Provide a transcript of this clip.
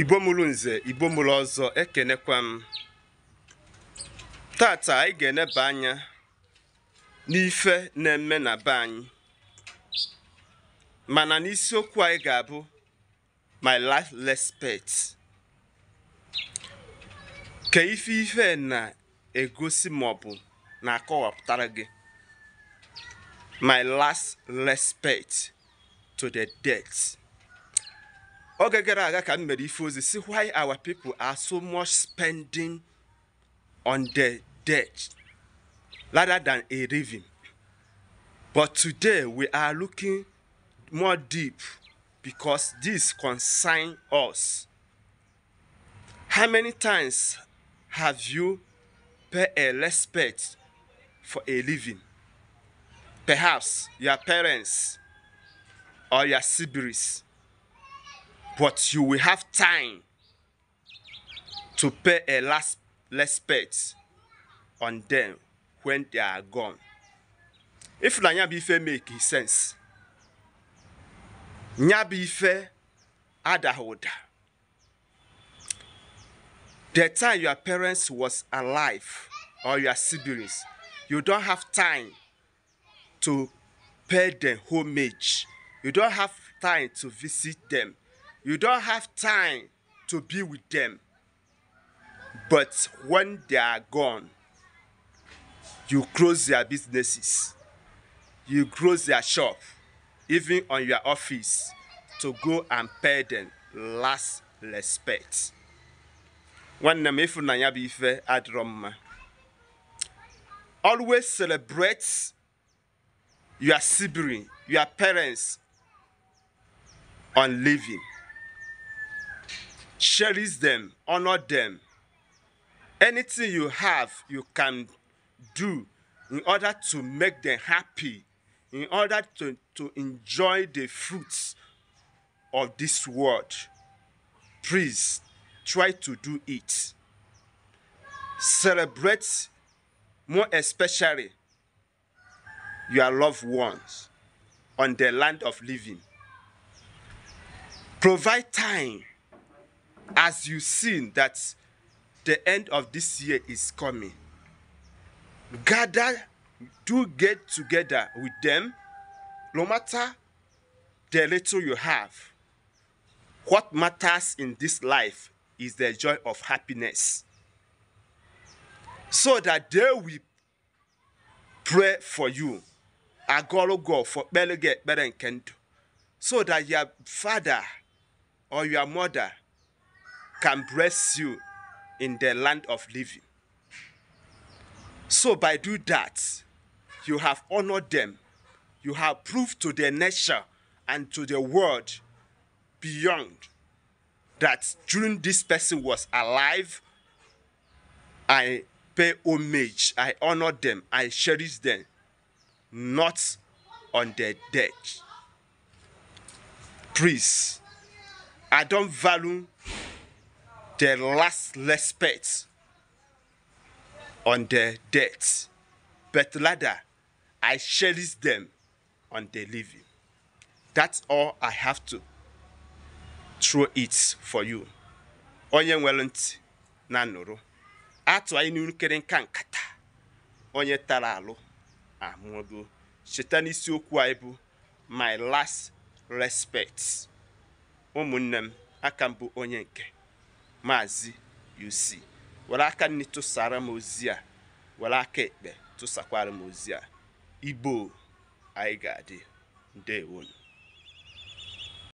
ibomulu nze igbo ọzọ ekenekwa m tata anyị ga-eneba anya n'ife na-eme na be anyị mana n'isiokwu anyị ga-abụ my life respect ka ife ife na-egosi maọbụ na-akọwapụtara gị my last respect to the death. oge gara aga ka m mere ife ozi si why our people are so much spending on the debt rather than a living but today we are looking more deep because this concern us how many times have you pay a respect for a living perhaps your parents or your siblings but you will have time to pay a last respect on them when they are gone. If na nyabife make sense, nyabife adahoda. The time your parents was alive or your siblings, you don't have time to pay them homage. You don't have time to visit them. You don't have time to be with them. But when they are gone, you close their businesses, you close their shop, even on your office, to go and pay them last respect. Nwanne m ịfụnanya bụ Always celebrate your sibling, your parents on living cherish them, honor them. Anything you have, you can do in order to make them happy, in order to, to enjoy the fruits of this world. Please try to do it. Celebrate more especially your loved ones on the land of living. Provide time as you seen that the end of this year is coming gather do get together with them no matter the little you have what matters in this life is the joy of happiness so that they will pray for you agorogo for kpelige ekpere nke so that your father or your mother can bless you in the land of living. So by doing that, you have honored them. You have proved to their nature and to the world beyond that during this person was alive, I pay homage, I honor them, I cherish them, not on their death. Please, I don't value their last respect on their death, but rather I cherish them on their living. That's all I have to throw it for you. Onye nwere ntị na nụrụ, atụ anyị n'ikere nka nkata, onye tara alụ amụgo. Cheta n'isiokwu anyị bụ My Last Respect. Ụmụnne m, aka bụ onye nke. maazị UC were aka nri tụsara m ozi a were aka ekpe tụsakwara m ozi a igbo anyị ga-adị ndewonu